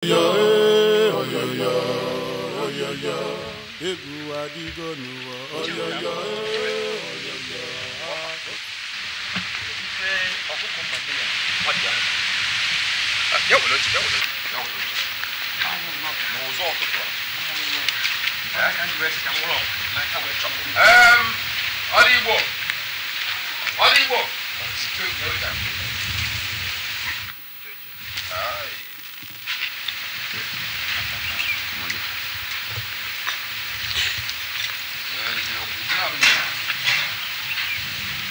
egwu adịgo n'ụwa ọdịgbo ọdịgbo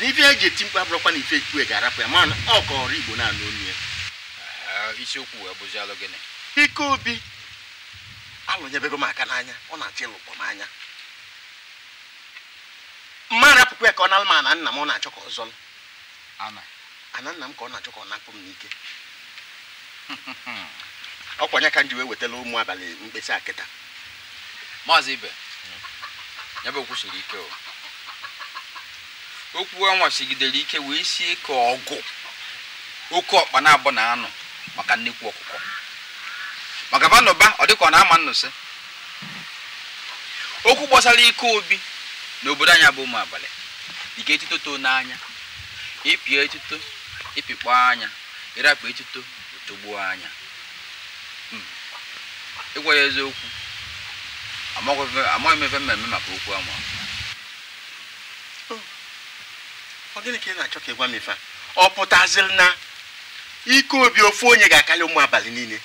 na ife eji eti mkpa abụrụkwa na ife ekpue ga-arapụ ya na ọ kọrọ igbo na-anụ onu ya isiokwu wee bụzi alụ gịnị ike obi alụnyebego m aka n'anya ọ na-achọ ịlụkpọ m anya mma rapụkwa ya ka ọ nalụ ma ana nna m ọ na-achọ ka ọ zọlụ ana nna m ka ọ na-achọ ka ọ napụ m n'ike ọkwanye ka m ji wee wetala ụmụ abalị mkpesa akịta maazị ibe nyebe bụ okwu siri ike o okwu a sigidere ike wee sie ka ọgụ oke ọkpa na-abụ na anụ maka nnekwu ọkụkọ maka banụba ọ dịka ọ na-ama nnụsị okwu gbasara ike obi n'obodo anyị bụ ụmụ abalị ike etuto n'anya ịpịa etuto ịpịkpọ anya ịrapụ etuto otogbuo anya ịgwa ya eziokwu amaghị m ebe mmemme maka okwu ama ọ gịnị ka ị na-achọ ka ị gwa m ife a ọ pụtaziri na ike obi ofu onye ga-akarị ụmụ abalị niile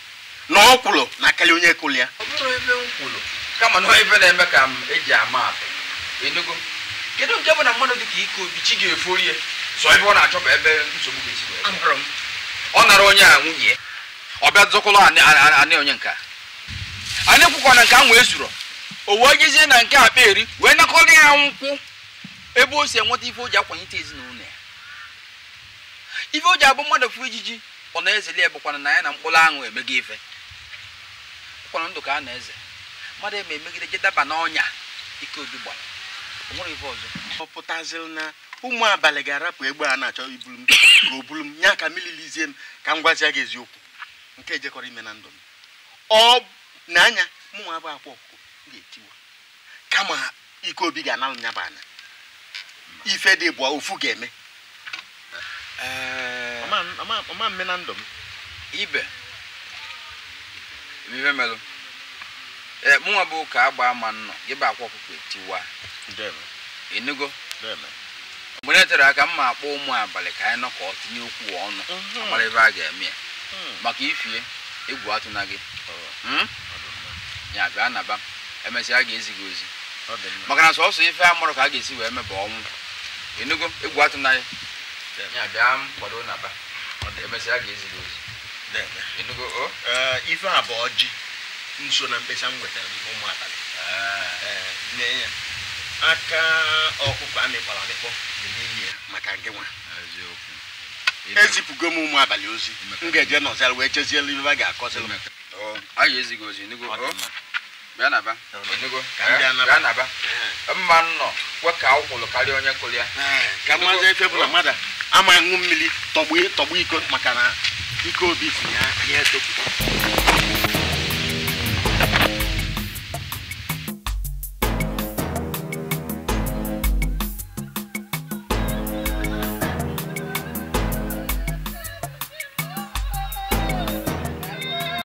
na ọ kwụrụ na akarị onye kụrụ ya ọ bụrụ ebe m kama na ebe na-eme ka m eji ama atụ enugo kedu nke bụ na mmadụ dị ka ike obi chi ga-eforie so ebe ọ na achọ bụ ebe nsogbu ga-esi ọ nara onye a nwunye ọ bịa zọkwụlọ anị onye nka anyị kwụkwa nke a nwee zuru o wee jezie na nke akpa eri wee nakọrọ ya nkwụ ebe o si enweta ife o ji akwanyite ezinụlọ ya ife o ji abụ mmadụ fụ ijiji ọ na-ezeli bụkwana na ya na mkpụrụ aṅụ emego ife ụkwana ndụ ka a na-eze mmadụ eme emegide je daba n'ọnya ike obi gbara nwere ife ọzọ ọ na ụmụ abalị ga-arapụ egbe a na-achọ ibulu m ka o bulu m ka m ka m gwazie gị eziokwu nke ejekọrọ ime na ndụ m ọ na anya mụnwa bụ akwa ọkụkụ ga-etiwa kama ike obi ga-analụ nya anya ife dị bụ ofu ga-eme eh, ọma mme na ndụ m ibe ibe melụ ee eh, mụnwa bụ ka agba ama nnọ ịba bụ akwa ọkụkọ etiwa enugo mgbe e tere aka mma akpọ ụmụ abalị ka anyị nọ ka ọ tinye okwu ọnụ mhm. mara ebe a ga-eme ya hmm. maka ifie egwu atụ na gị hmm? ya bịa naba emesịa a ga-ezi gị ozi maka na sọsọ ife a ka a ga-esi wee meba ọnwụ Enugu egwu atụ ya ga ozi Enugu ife a bụ ọjị nso na mkpesa nwetara ụmụ abalị ya ah. eh, aka ọkụkọ amịkpọrọ amịkpọ maka nke nwa ezipụgo m ụmụ abalị ozi m ga-eje wee ibe oh, ozi enugo bịa enugo eh? naba mma nnọ kwe ka ọ karịa onye kụrụ ya ka mmazi efe bụ na mmadụ ama ṅụ mmiri tọgbu e, iko maka na ike obi si ya ya etopụ